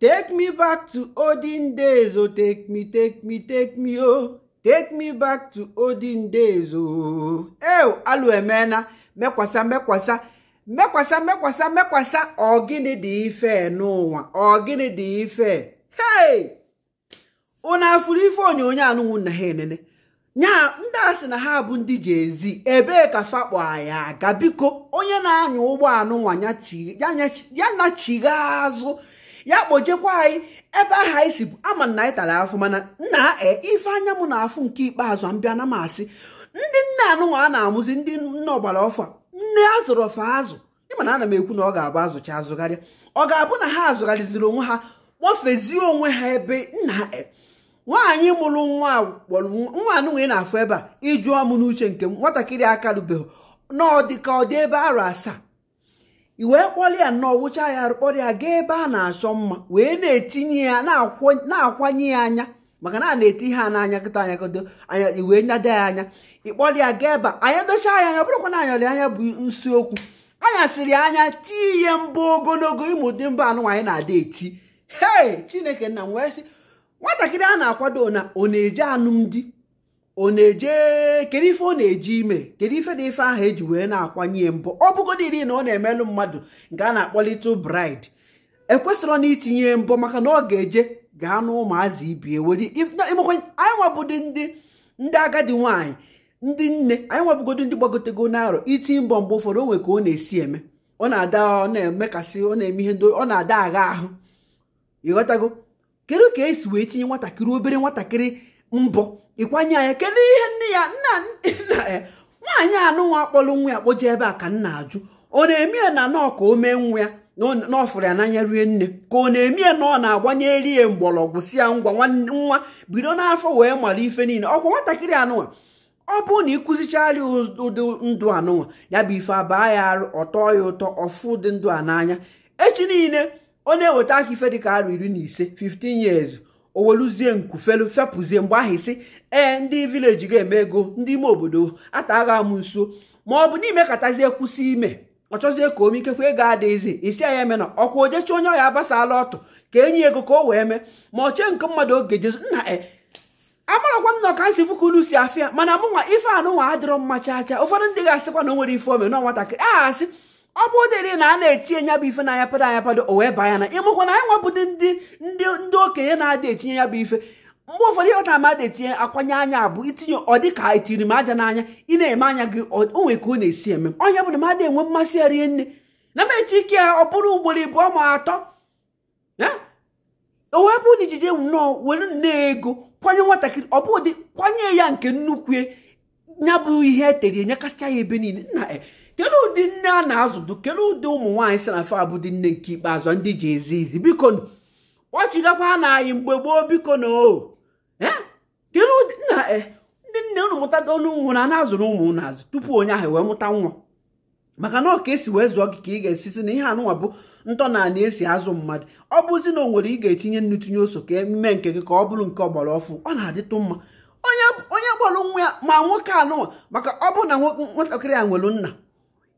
Take me back to olden days, oh, take me, take me, take me, oh. Take me back to olden days, oh. Ee, eh, oh, alụ emena, mekwasa, mekwasa, mekwasa, mekwasa, mekwasa, ọ dị ife n'ụwa, ọgịnị dị ife. Hey! Unu afụrụ ife onyonyo anụnwụ na ha enene. nya ndị asị na ha bụ ndị ga-ezi ebee ka fakpo ya aga biko onye na-anya ụgbọ anụ nwa ya nyachigha azụ ya kpojekwa anyị ebe ahụ anyị si ama na anyị tara afụ mana nna e, ife anya m na-afụ nke ikpeazụ a mbịa na m asị ndị nne anụnwa a na-amụzi ndị nne ọgbara ọfụ nne azụrụ ọfa azụ ịmana ana m ekwu na ọ ga-abụ azụcha azụgharịa ọ ga-abụ na ha azụgharịziri onwe ha kpọfezie onwe ha ebe nna e. nwaanyị mụrụ nwa nwa anụnwa ị na-afụ ebe a ịjụọ m n'uche nke m nwatakịrị aka rubeghị na ọ dị ebe arụ asaa i wee kpọrọ ya nnọọ wụcha ya kpọrọ ya gaa ebe a na-achọ mma wee na-etinye ya na-akwanye ya anya maka na a na-eti ha n'anya kịta anya kodo wee nyado ya anya ịkpọrọ ya gaa ebe anya dochaa ya anya bụrụkwa na anyarị anya bụ nsi okwu anya siri anya tii ihe mbụ ogologo ịmụdị mba anyị na-ada eti hei chineke nna m wee sị nwatakịrị a na-akwado na ọ na eji alụmdi ọ na-eje kedu ife ọ na-eji ime kedu ife na ife ahụ eji wee na-akwanye mbọ ọ iri na ọ na-emelụ mmadụ nke a na-akpọ little bride e na itinye mbọ maka na ọ ga-eje gaa n'ụmụazị ibie were anyị nwabụdị ndị ndị agadi nwaanyị ndị nne anyị nwabụgodo ndị gbagotego n'arọ iti mbọ mgbe ụfọdụ onwe ka ọ na-esi eme ọ na-ada ọ na-emekasị ọ na-eme ihe ndị ọ na-ada agha ahụ ịghọtago kedu ka esi wee tinye nwatakịrị obere nwatakịrị mbọ ịkwanye anya kedu ihe nne ya nna ya eh, nwaanyị anụnwa akpọrọ nwa ya kpoje ebe a ka nna ajụ ọ na emie ya na nọọ ka o mee nwa ya n'ọfụrụ ya n'anya rie nne ka ọ na emie ya na ọ na-agbanye rie mgbọrọgwụ si ya ngwa nwa bido n'afọ wee mara ife niile ọkwa nwatakịrị anụnwa ọ bụrụ na ịkụzichara ụdị ndụ anụnwa ya bụ ife abaa ya arụ ọtọ ya ụtọ ọfụ dị ndụ a n'anya echi niile ọ na-eweta aka ife dịka arụ iri na ise 15 years o nku felu fepụzie mgbe ahụ isi ee ndị vileji ga-eme ego ndị ime obodo ata agha amụ nso ma ọ bụ n'ime katazie kwụsị ime ọ chọzie ka omikekwa ego adịghịzi isi anya eme na ọkwa ojechi onye ọya agbasala ọtụ ka enyi ego ka o wee mee ma ọ chee nke mmadụ oge jesu nna e amarakwa m na ọkansi fukulu si afịa mana mụnwa ife anụnwa adịrọ mma chaa chaa ụfọdụ ndị ga-asịkwa na o nwere ife ome na nwatakịrị aha asị ọ bụ dịrị na a na-etinye ya bụ ife na anyapado pado o wee baa ya na ịmụkwa na anyị nwabụdị ndị ndị okenye na adị etinye ya bụ ife mgbe ụfọdụ ịghọta amada etinye akwanye anya abụ itinye ọ dị ka etiri m aja n'anya ị na-eme anya gị onwe ka ọ na-esi eme onye bụ na mmadụ enwe mmasị ya rie nne na m eti ike ya ọ bụrụ ugboro ịbụọ ma atọ o wee bụ na ijije nnọọ were nne ego kwanye nwatakịrị ọ bụ ụdị kwanye ya nke nnukwu ya bụ ihe etere nyekasịcha ya ebe niile e, kedu ụdị nne a na-azụdụ kedu ụdị ụmụ nwaanyị si na fa bụ dị nne nke ikpeazụ ndị ji ezi izi biko kpọchigakwa na anyị mgbe gboo biko na o eh? kedu ụdị eh, ndị nne unu mụtada olu ụmụ na na-azụrụ ụmụ na azụ tupu onye ahụ wee mụta nwa maka na ọka esi wee zụọ gị ka ị ga-esisi na ihe anụnwa bụ ntọnala esi azụ mmadụ ọ bụzi na o nwere ị ga-etinye nnu tinye ose ka eme nke gị ka ọ bụrụ nke ọgbara ọfụ ọ na-adịtụ mma onye gbọrọ nwa ya ma nwoke anụnwa maka ọ bụ na nwatakịrị ya nwere nna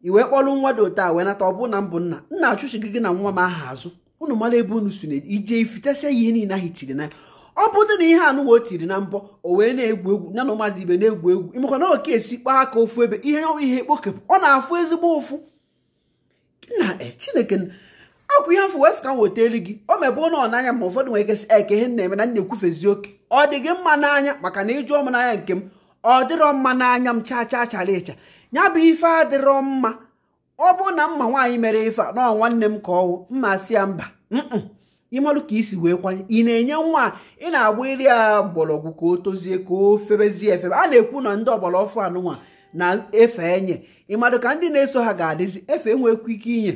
i wee kpọrọ nwa dị ote a wee nata ọ bụ na mbụ nna nna achụchighị gị na nwa m aha azụ ụnụ mara ebe unu si na ije ifitesia ya ihe niile ahụ tiri na ya ọ bụrụ na ihe anụwa o tiri na mbọ o wee na-egwu egwu ya na ụmụazị ibe na-egwu egwu imekwa na oke esi kpaa aka ofu ebe ihe ihe kpokepụ ọ na-afụ ezigbo ụfụ na e, chineke akwụ ihe afọ wee ka m weta elu gị o mebe ụlọ n'anya ma ụfọdụ nwere kesị eke ihe na-eme na na-ekwufezi oke ọ dị gị mma n'anya maka na ịjụ ọmụ n'anya nke m ọ dịrọ mma n'anya m chaa chaa chara ịcha ya bụ ife adịrọ mma ọ bụ na mma nwaanyị mere ife a nọ nwanne m ka ọwụ mma si ya mba ịmalụ ka isi wee kwanye ị na-enye nwa ị na-agba iri ya mgbọrọgwụ ka o tozie ka o febezie efebe a na-ekwu na ndị ọgbara ọfụ anụnwa na-efe enye ịmadụ ka ndị na-eso ha ga-adịzi efe enwekwu ike inye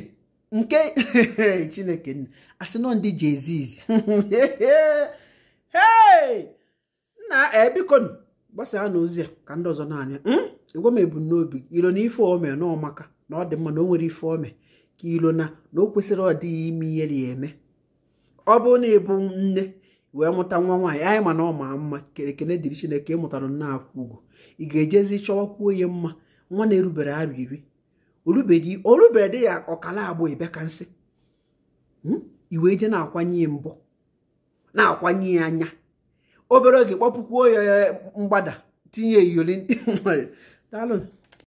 nke chineke nna asị nọ ndị jeziz nna ebikonu eh, gbasaa n'ozi ozi a ka ndị ọzọ na-anya hmm? ịgwa m ebumnobi ilo na ife ome na ọmaka na ọ dị mma na o nwere ife ome ka ilo na na o kwesịrị ọdịghị ime ihe ya eme ọ bụrụ na ịbụ nne wee mụta nwa nwaanyị anyị ma na ọ maa mma ekene dịrị chineke ị mụtara nna akwụ ugo ị ga-ejezi chọwakwuo onye mma nwa na-erubere arụ iri orubere dị ya ọkala agbụ ịbịa ka nsị iwe hmm? je na-akwanye mbụ na-akwanye anya obere oge kpọpụkwuo ya mgbada tinye iyoli daalụ